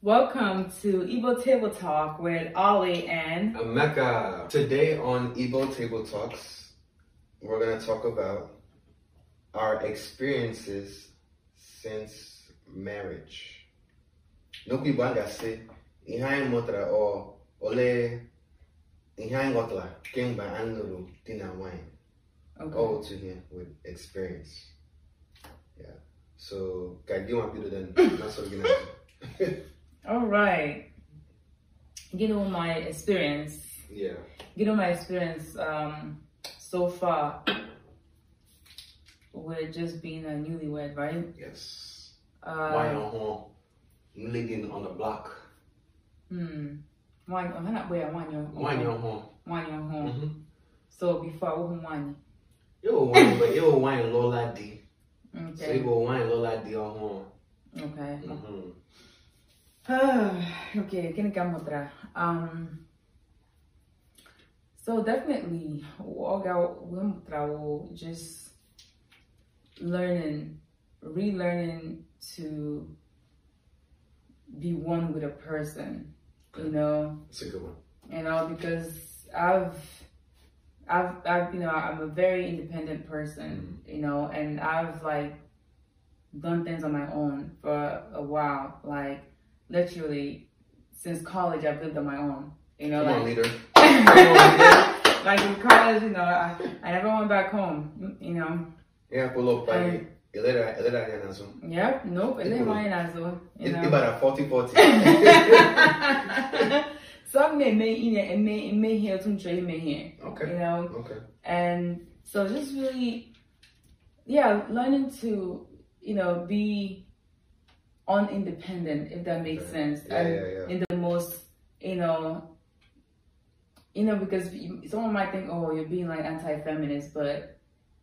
Welcome to Igbo Table Talk with Ollie and Emeka. Today on Igbo Table Talks, we're going to talk about our experiences since marriage. N'okwu Igbo a ga say ihe anyị or ọ ole ihe anyị ghọtara kemgbe anyị lụrụ di na nwanyị all to him with experience yeah. so ka gị nwa bido nasọrọ gị right. You know my experience yeah. You know, my experience um, so far with just being a newlywed right yes um, why living on the block hmm nwaanyị ọ na-akpọ ya nwaanyị ọhụụ nwaanyị ọhụụ so bifo awụhụ nwaanyị ịwụ nwaanyị lụọla di so ịbụ nwaanyị lụọla di ọhụụ ok gịnị ka m mụtara so definitely oga mgbe m mụtara wụ just learning relearning to be one with a person you know. that's a good one. You know, because I've, I've, I've, you know, I'm a very independent person, mm-hmm. you know, and I've like done things on my own for a while. Like literally, since college, I've lived on my own. You know, Come like, on, like in college, you know, I, I never went back home. You know. Yeah, pull up, baby. Elere anya yeah Yep, nope, elere anya n'azụ. Ịbara 40-40. So I'm gonna make you know and make make here some trade make here. Okay. You know? Okay. And so just really yeah, learning to, you know, be on independent, if that makes right. sense. Yeah, and yeah, yeah. in the most, you know, you know, because someone might think, oh, you're being like anti-feminist, but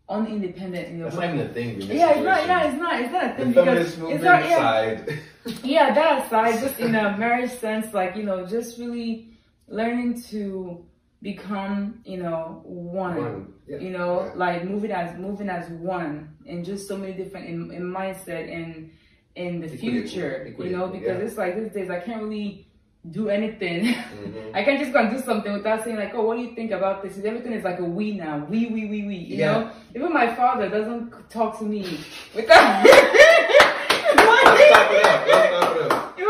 unindependent in your That's way. not even a thing. Yeah, it's not, yeah, it's not, it's not a thing. The feminist movement it's not, yeah, side. yeah, that aside, just in a marriage sense, like, you know, just really learning to become, you know, one, one. Yeah. you know, yeah. like moving as, moving as one and just so many different in, in mindset and in the Equity. future, you know, because it's like these days I can't really do anything. Mm-hmm. I can't just go and do something without saying like, oh, what do you think about this? Everything is like a we now, we, we, we, we. You yeah. know, even my father doesn't talk to me without. even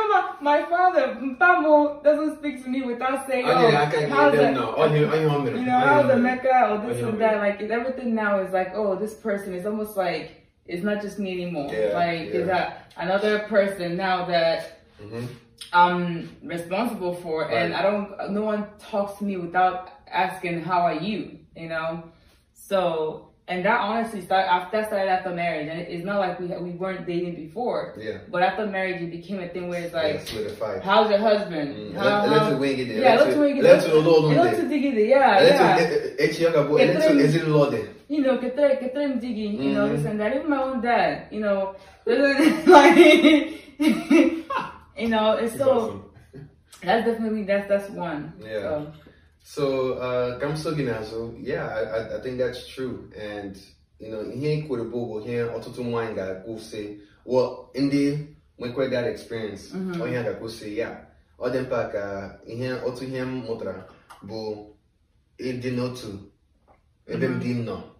my, my father, Mpamo, doesn't speak to me without saying, oh, how's the, no. Oh, you oh, know, oh, how's the Mecca or this and that. Like everything now is like, oh, this person is almost like it's not just me anymore. Yeah, like yeah. is that another person now that. Mm-hmm I'm responsible for, right. and I don't. No one talks to me without asking how are you, you know. So and that honestly started after that started after marriage, and it's not like we we weren't dating before. Yeah. But after marriage, it became a thing where it's like, yeah, how's your husband? Mm. How, let's how, wing it. Yeah, let's wing it. Let's roll it. Yeah, yeah. Eh, eh, eh, you know, que te You know, this and that. Even my own dad. You know, like. you know, it's, it's so awesome. that's definitely that's that's one. Yeah. So, so uh Gamso Ginazo, yeah, I, I think that's true. And you know, ihe nkwurịbụgwụ ihe otutu nwaanyị ga-akwụsị well ndị nwekwe that experience mm-hmm. onye oh, a ga-akwụsị ya ọ dị mkpa ka ihe otu ihe m mụtara bụ not n'otu ebe m dị m nọ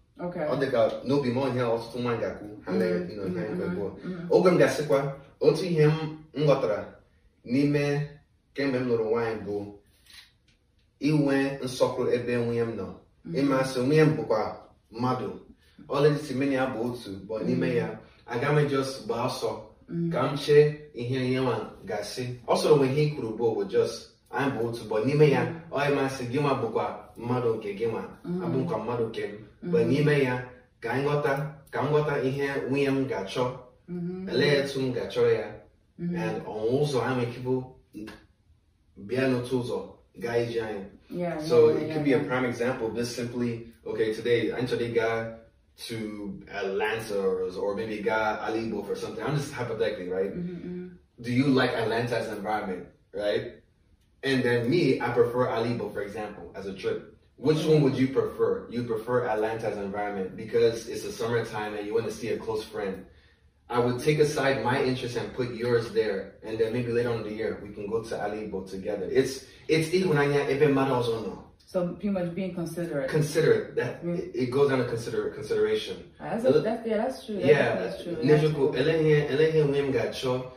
ọ dị ka n'obi m ọnya ọtụtụ nwaanyị ga-akwụ ha mere mm-hmm. mm-hmm. gbuo mm-hmm. oge m gasịkwa gasịkwa otu ihe m ghọtara n'ime kemgbe m lụrụ nwaanyị bụ inwe nsọpụrụ ebe nwunye m nọ ịmasị nwunye m bụkwa mmadụ ọlịdịsimeni ya bụ otu bụ n'ime ya aga m jos gbaa ọsọ ka m chee ihe ihe gasị ọ sọrọ nwe ihe i bụ oh, jos anyị bụ otu n'ime ya onye masị gị nwa bụkwa mmadụ nke gị nwa mm. abụkwa mmadụ nke m mm. mgbe n'ime ya ka anyị ghọta ka m ghọta ihe nwunye m ga-achọ mm-hmm. elee etu m ga achọ ya mm-hmm. ọnwụ ụzọ anyị ekebụ bịa n'otu ụzọ gaa ije anyị so it could be a prime example just simply okay today anyị chọrọ ịga to Atlanta or maybe ga Ala Igbo for something I'm just hypothetically right mm-hmm, do you like Atlanta's environment right And then me, I prefer Alibo, for example, as a trip. Which one would you prefer? You prefer an environment because it's the summertime and you want to see a close friend. I would take aside my interest and put yours there, and then maybe later on in the year we can go to Alibo together. It's it's no. So pretty much being considerate. Considerate that mm. it, it, goes down to consider consideration. Ah, that's, a, that's yeah, that's true. That's, yeah, that's true. That's true.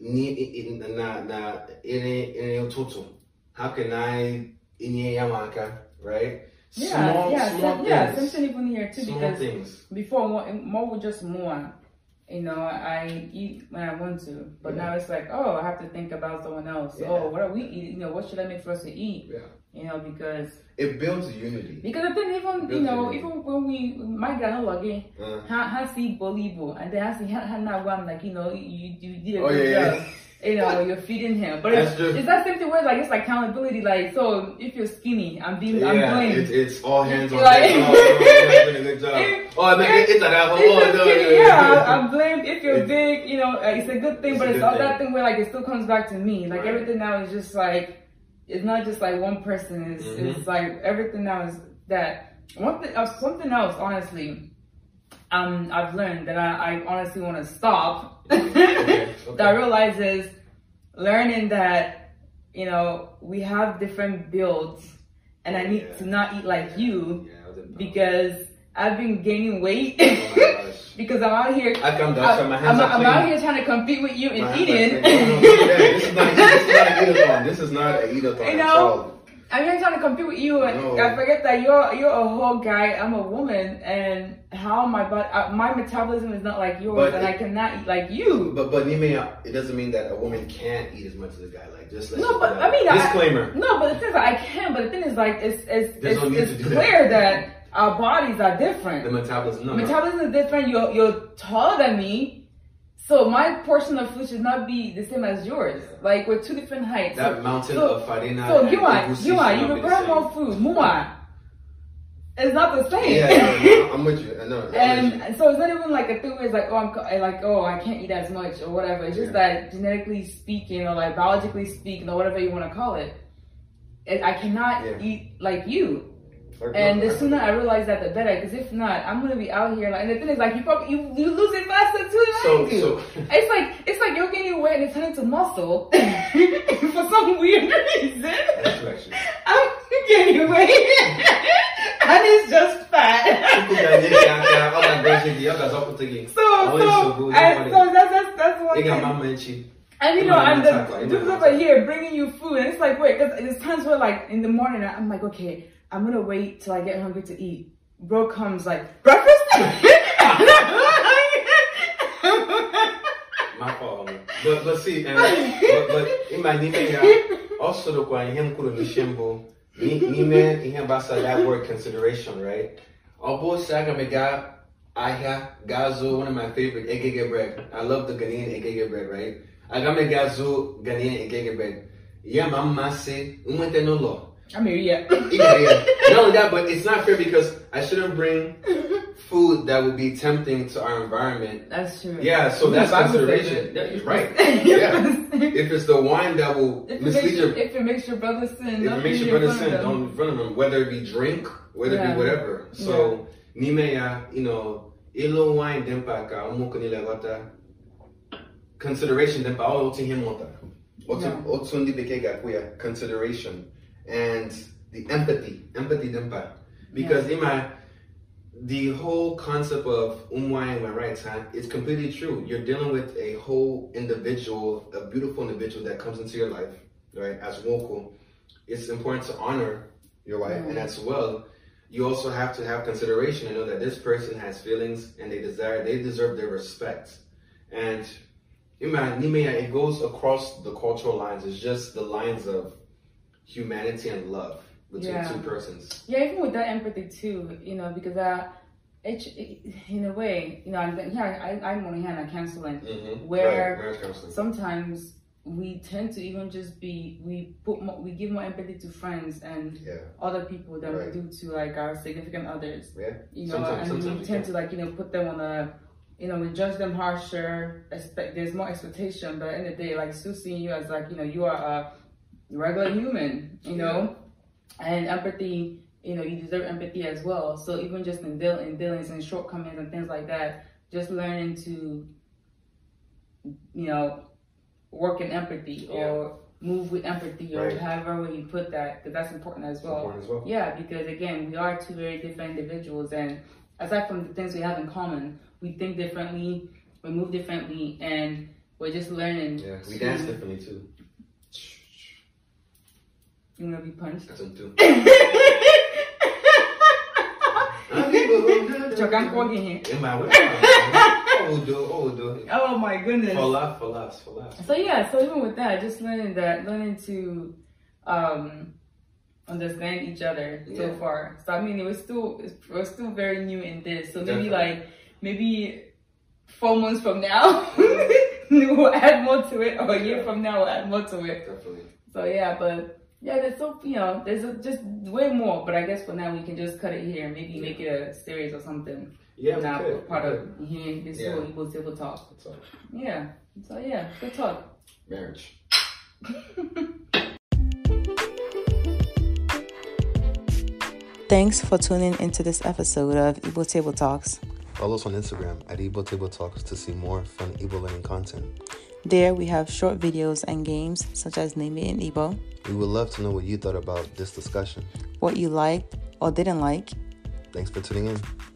na nri ụtụtụ how can i inye ya m aka right yeah, small, yeah, small things. yeah, even here too small because things. before more, more was just more. You know, I eat when I want to, but yeah. now it's like, oh, I have to think about someone else. Yeah. Oh, what are we eating? You know, what should I make for us to eat? Yeah. you know, because it builds unity. Because I think even you know, unity. even when we my granola again, uh. Uh-huh. ha ha see Bolibo and then ha see ha na one like you know you you did a oh, yeah, Yeah. You know, you're feeding him, but it's, it's, that same thing where like it's like accountability. Like, so if you're skinny, I'm being, yeah, I'm blamed. It's, it's all hands on like, deck. oh, doing a good job. If, oh, man, it's, it's an Oh, no, yeah, I'm blamed. If you're it's, big, you know, uh, it's a good thing, but it's all thing. that thing where like it still comes back to me. Like right. everything now is just like it's not just like one person. It's, mm-hmm. it's like everything that was that one thing, uh, something else. Honestly, um, I've learned that I, I honestly want to stop. okay. Okay. that realizes learning that you know we have different builds, and I oh, need yeah. to not eat like you yeah, because I've been gaining weight oh because I'm out here. I've done that. my hands I'm, I'm out here trying to compete with you in eating. this is not, an eat-a-thon. This is not an eat-a-thon. You know, I'm here trying to compete with you, and I forget that you're you're a whole guy. I'm a woman, and how my body, uh, my metabolism is not like yours, but and it, I cannot eat like you. But but Nime, it doesn't mean that a woman can't eat as much as a guy. Like just let no, but I mean disclaimer. I, no, but the thing is, I can. But the thing is, like it's it's There's it's, no it's clear that, that Our bodies are different. The metabolism. No, metabolism is different. You're, you're taller than me. So my portion of food should not be the same as yours. Like we're two different heights. That so, mountain so, of farina. So you are, you are, you prepare more food. Mua. It's not the same. Yeah, yeah I'm with you. I know. I'm and so it's not even like a thing where it's like, oh, I'm like, oh, I can't eat as much or whatever. It's just yeah. that genetically speaking or like biologically speaking or whatever you want to call it, I cannot yeah. eat like you. And the sooner I realize that, the better. Because if not, I'm gonna be out here. Like, and the thing is, like, you probably you, you lose it faster too so, so. It's like it's like you're gaining weight and it's turning to muscle for some weird reason. I'm gaining weight and it's just fat. so so, and so that's that's that's one thing. And you know, I'm the dudes over here bringing you food, and it's like, wait, because there's times where, like, in the morning, I'm like, okay, I'm gonna wait till I get hungry to eat. Bro comes like, breakfast? My fault. But, but see, uh, but, but in my name, uh, also the kwa him kuru mishimbo, nime him basa that word consideration, right? Obo oh, saga mega ahia gazo, one of my favorite egege bread. I love the Ghanaian egege bread, right? Agame gazo Ghanaian egege bread. Yeah, mama say, umwete no law. I mean, yeah. yeah, yeah. Not only that, but it's not fair because I shouldn't bring food that would be tempting to our environment. That's true. Yeah, so that's consideration. right. yeah. if it's the wine that will if mislead your, your... If it makes your brother sin. If it makes your brother sin, don't in front of him. Whether it be drink, whether yeah. it be whatever. So, yeah. nimeya, you know, ilo wine dempaka, umukunilagota. Consideration dempa, all oh, otu him ota. Otun dibeke gakuya, consideration. and the empathy, empathy dimpa. Because yeah. Ima, the whole concept of umwai and right time is completely true. You're dealing with a whole individual, a beautiful individual that comes into your life, right? As woku, it's important to honor your wife, and mm. as well, you also have to have consideration and know that this person has feelings and they desire, they deserve their respect, and Ima, it goes across the cultural lines. It's just the lines of humanity and love between yeah. two persons. Yeah, even with that empathy too, you know, because I, it, in a way, you know, I'm, yeah, I, I'm on hand at counseling, mm-hmm. where right. counseling. sometimes we tend to even just be we put more, we give more empathy to friends and yeah. other people than right. we do to like our significant others. Yeah, you know, sometimes, and sometimes we tend to like you know put them on a you know we judge them harsher. Expect there's more expectation, but in the, the day, like still seeing you as like you know you are a regular human, you know? Yeah. And empathy, you know, you deserve empathy as well. So even just in, deal- in dealings and shortcomings and things like that, just learning to, you know, work in empathy yeah. or move with empathy or however way you put that, because that's important as well. important as well. Yeah, because again, we are two very different individuals, and aside from the things we have in common, we think differently, we move differently, and we're just learning. Yeah, we to, dance differently too. You wanna be punched? Oh my goodness. For for laughs, for laughs. So yeah, so even with that, just learning that, learning to um, understand each other yeah. so far. So I mean, it was still still very new in this. So maybe Definitely. like maybe four months from now we'll add more to it, or Yeah, there's so you know, there's just way more, but I guess for now we can just cut it here. Maybe yeah. make it a series or something. Yeah, not part of yeah, this yeah. whole Igbo table talk. Yeah. So yeah, good talk. Marriage. Thanks for tuning into this episode of Igbo Table Talks. Follow us on Instagram at Igbo Table Talks to see more fun Igbo learning content. There we have short videos and games such as Name It in Igbo. We would love to know what you thought about this discussion, what you liked or didn't like. Thanks for tuning in.